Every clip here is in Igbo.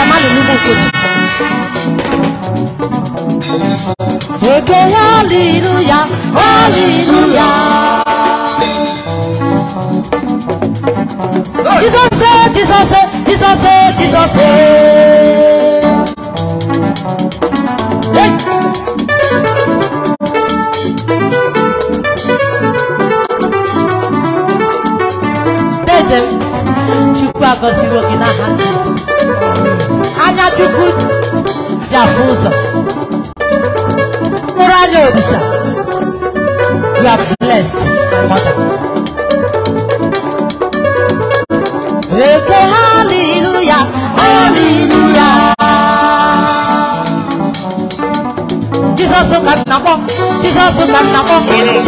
Jamal Nubu Kuti. Okay, hallelujah, hallelujah. Jesus said, Jesus said, Jesus said. You are blessed, mother. Okay, hallelujah, hallelujah. Jesus so can nabo, Jesus so can nabo,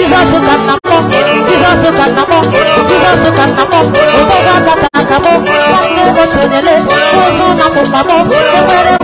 Jesus so can nabo, Jesus so can nabo, Jesus so can nabo. Otoga kata kabo, kabo chonele, oso nabo mabo, ebere.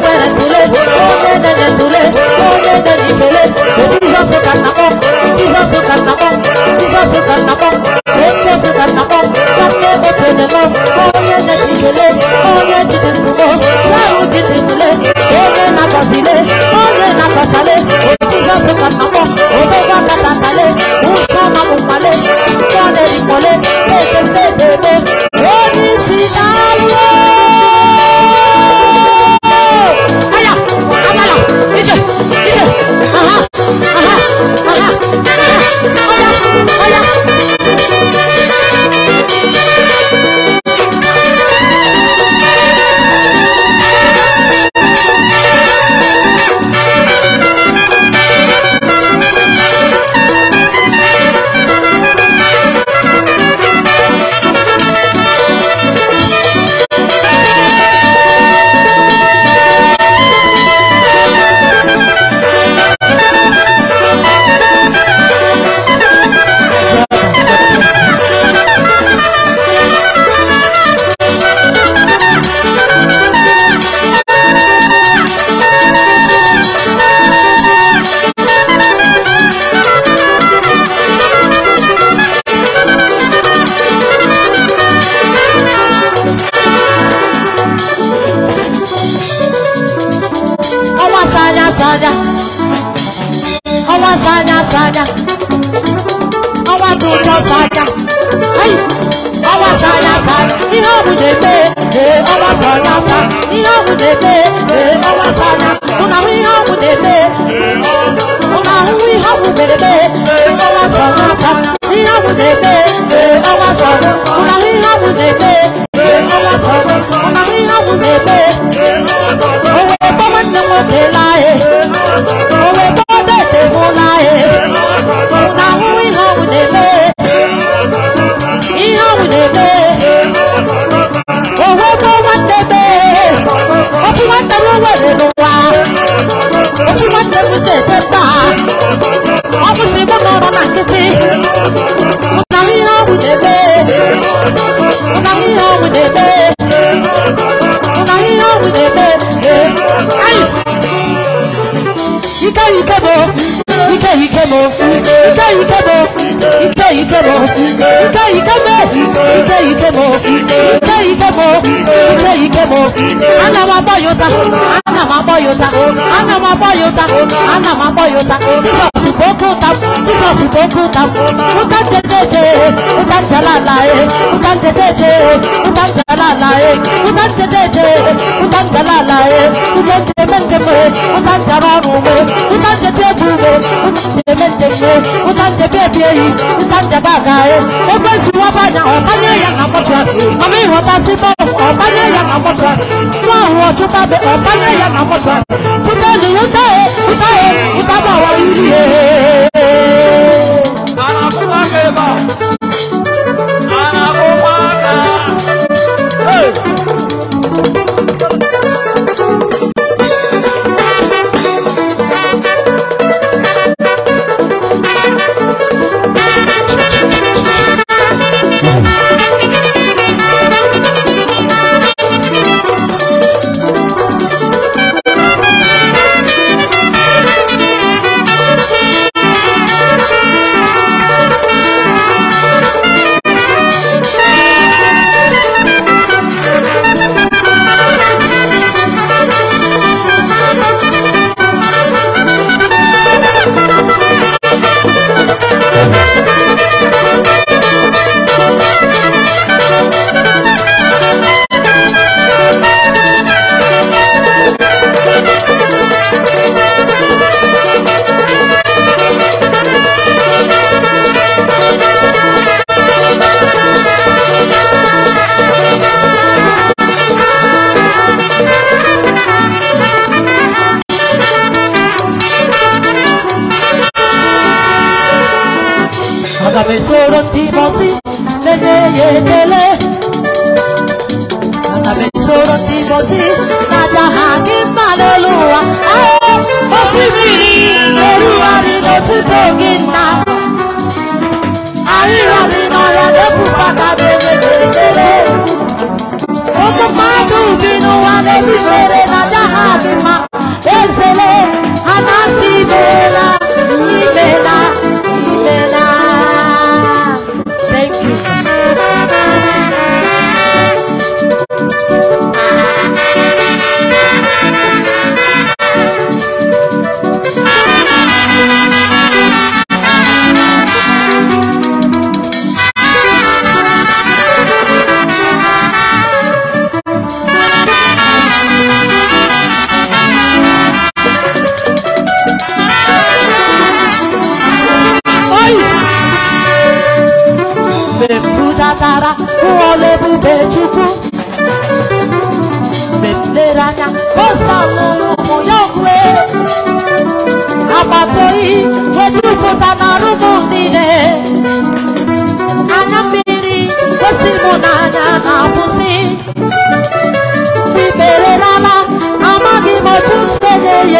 wasa ihe ọgwụ na-eme wasa na ahụ ihe ọgwụ na-eme mụ na eme mu ìkẹ́bọ̀ ìkẹ́ ìkẹ́bọ̀ ìkẹ́ ìkẹ́bọ̀ ìkẹ́ ìkẹ́bọ̀ ìkẹ́ ìkẹ́bọ̀ ìkẹ́ ìkẹ́bọ̀ ìkẹ́ ìkẹ́bọ̀ ana ma bọ́ yóò ta ana ma bọ́ yóò ana ma bọ́ yóò ana ma bọ́ yóò ta jisọ̀sì bókú ta jisọ̀sì bókú ta uta jẹjẹjẹ uta jalala ye uta jẹjẹjẹ uta jalala ye uta jẹjẹjẹ uta jalala ye uta jẹmẹtẹmẹ uta jabarume uta jẹjẹbume uta jẹmẹ jese utanje bebi eyi utanje bagare ekwesi wabanya ọbanye ya na mọcha mami wabasi bọọlụ ọbanye ya na mọcha nwa ahụ ọchụtabe ọbanye ya na mọcha 왜 소름이 벗이 내내예 내래 나왜 소름이 벗이 나자 하긴 말로와 아예 벗이 미리 내루아리 너투 독인 나 아이와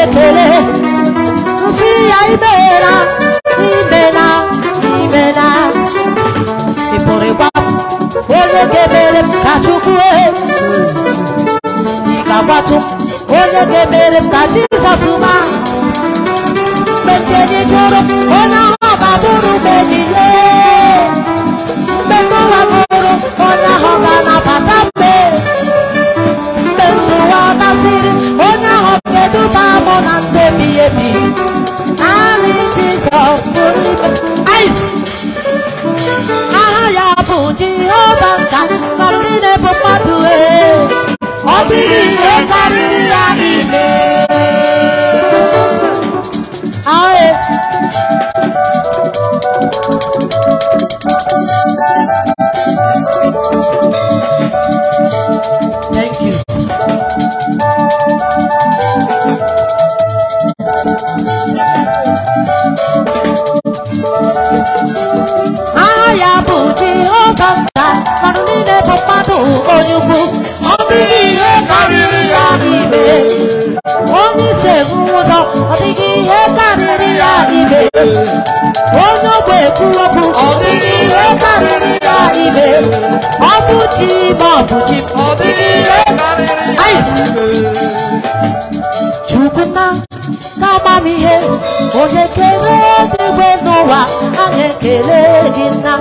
ekele nsị ya imela imela imela ị pụrụ ịgbapụ onye ga-emere m ka Chukwu ị ga-agbatụ onye ga-emere m bụrụ mgbe ọ̀nà gbé mi yé mi. Àmì Jísọ̀ lórí mi. Àìsí. Ahaya bụ Jehova nka Thank you. onye ogbe kwuru okwu ọbụghịre karịrị ya ibe ọ bụ chi ma ọ bụ chi ọbụghịre karịrị ya chukwuna n'amamihe onye kere edegbe n'ụwa a na-ekele gị nna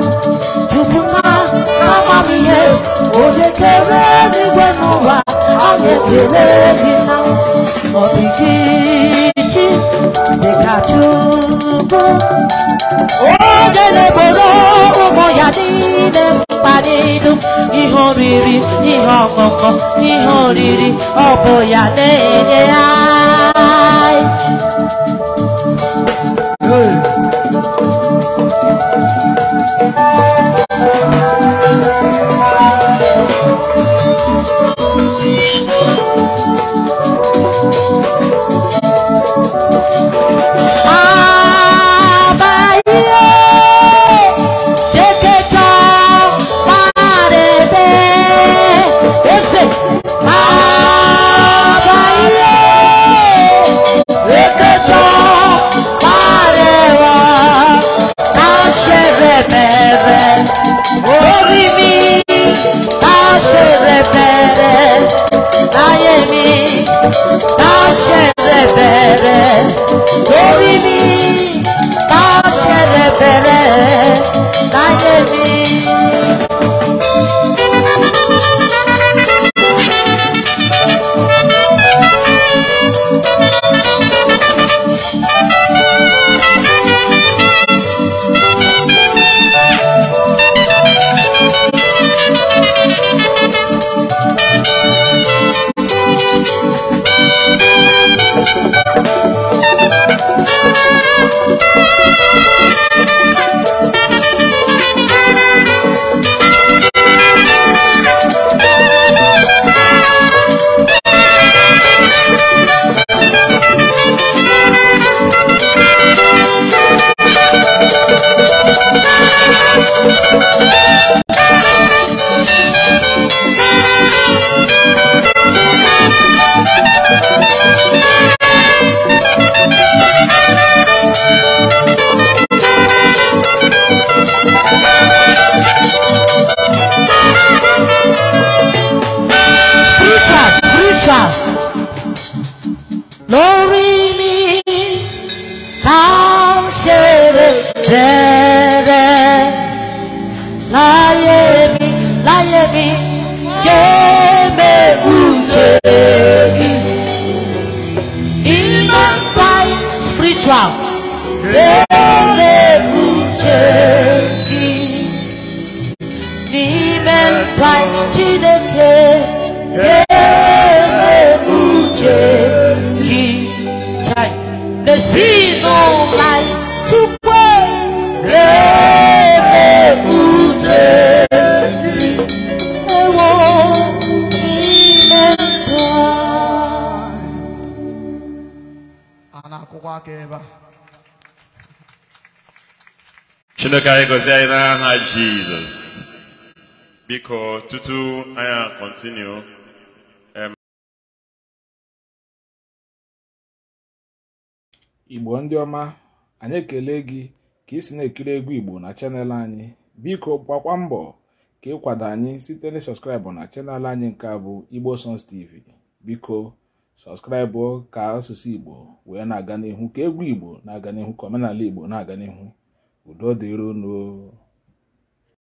chukwuna n'amamihe onye kere edegbe n'ụwa a na-ekele gị nna ọdịgị tuntun ogele bolo ụmụ ya niile mkpalilu ihe oriri ihe ọṅụṅụ ihe oriri ọ bụ ya Yeah. chineke anyị gọzie anyị n'aha jizọs biko tutu anyị kọntinu um, igbo ndị ọma anyị ekele gị ka ị si na-ekiri egwu igbo na chanel anyị biko gbakwa mbọ ka ịkwado anyị site na sọskraịbụ na chanel anyị nke a bụ igbo sons tv biko sọskraịbụ ka asụsụ igbo wee na-aga n'ihu ka egwu igbo na-aga n'ihu ka omenala igbo na-aga n'ihu udodhi runo